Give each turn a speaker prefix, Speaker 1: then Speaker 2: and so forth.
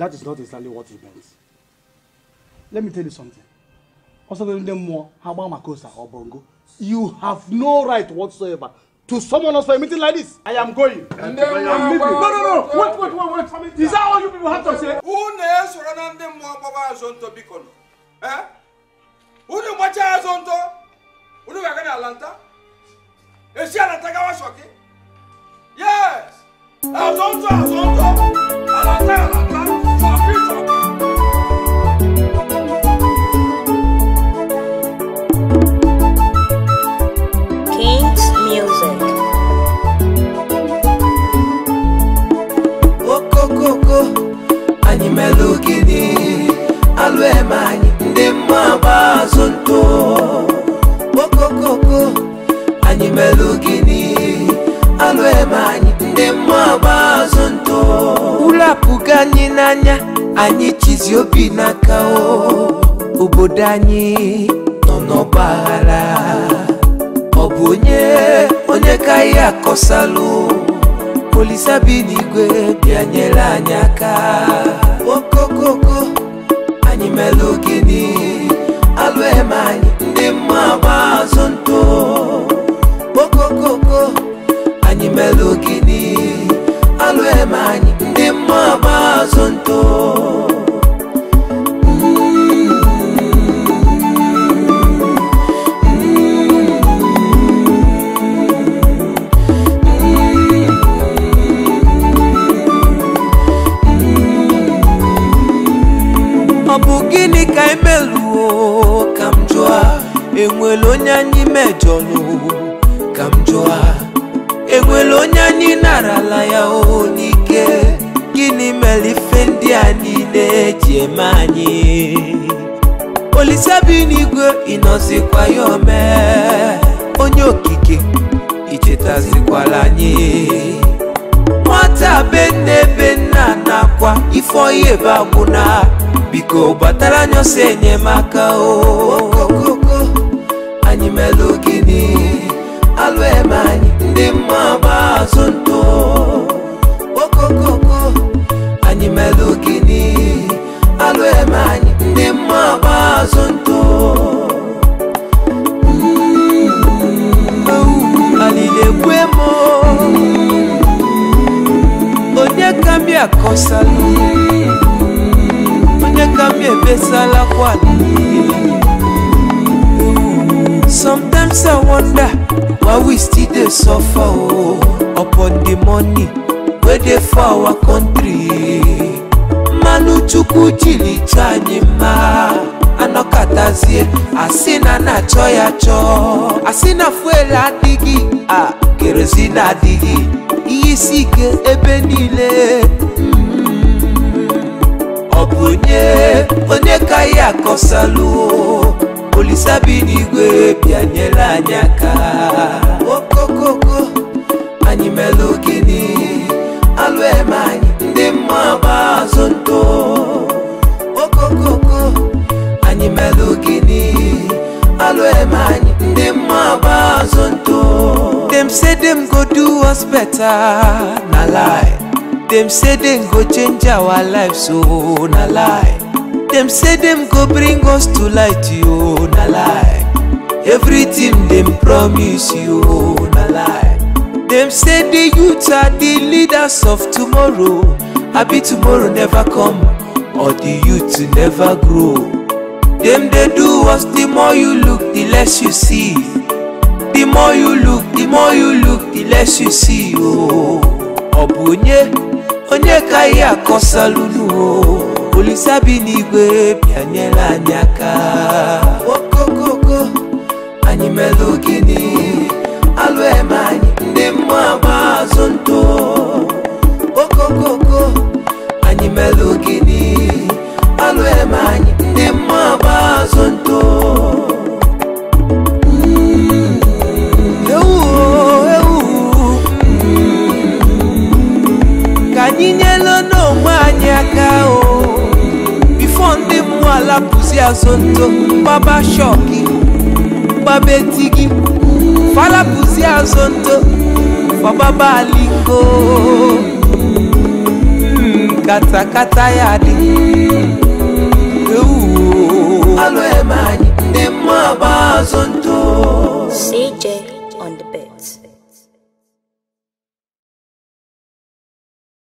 Speaker 1: That is not exactly what he meant. Let me tell you something. You have no right whatsoever to summon us for a meeting like this. I am going. I'm leaving. No, no, no. Wait, wait, wait, wait. Is that all you people have to say? Who knows what I'm doing? What I'm Eh? Who knows what I'm doing? Who knows what I'm doing? Is she Atlanta? Yes. I'm doing. imelugidi alụ eme anyị ndị mma gba azụ ntụ okokoko anyị melugidi alụ eme anyị ndị mma gba azụ ntụ ụlọ n'anya anyị chizi obi n'aka obodo anyị nọ n'ọgbaghara ọ onye onye ka ihe akọsalụ polisi abi n'igwe bịa nyere Mabugini bụ gịnị ka imeluo e ka m jụọ enwere onye anyị mejọrọ ka m jụọ enwere onye anyị narala ya o n'ike gịnị mere ife ndị a niile eji eme anyị olise onye okike ichetazikwala anyị nwata be nakwa ife ọya ebe agwụna biko batala nyonso enyemaka okokoko anyimelu gini alwemanyi ndị mma okokoko anyimelu gini alwemanyi ndị mma alilekwemo onye kambi ngambi ebesalako ani sometimes i wonder why we still dey suffer o oh, upon the money wey dey for our country mmanụ chukwu jilicha anyị mma anọkọtazie asị na na-achọ ya chọọ asị na fuel adịghị a ah, kerozin adịghị ihe isi ike ebe niile onye onye ka ya akọsalụ olisa bi n'igwe bịanyela anyị aka okokoko anyị melụ gịnị alụ eme anyị ndị mma gba azụ ntụ okokoko anyị melụ gịnị alụ eme anyị ndị mma gba azụ ntụ dem say dem go do us better na lie dem say dem go change our life so oh, na lie dem say dem go bring us to light you oh, na lie everything dem promise you oh, na lie dem say the youth are the leaders of tomorrow abi tomorrow never come or the youth never grow dem dey do us the more you look the less you see the more you look the more you look the less you see ooo oh. Obunye. bụ onye ka ihe akọsalụnu o olisa bi n'igwe bịanyela anyị aka okokoko anyị mere ogene alụ yaka o bifo ndị mmụọ ala pụzi azonto gbaba shọki gbaba etigi fala pụzi azonto fọgbaba aliko hmm, katakata ya dị alo eme anyị ndị mmụọ agba azonto CJ